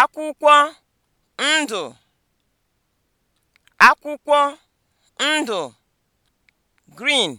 akwụkwọ ndụ akwụkwọ ndụ green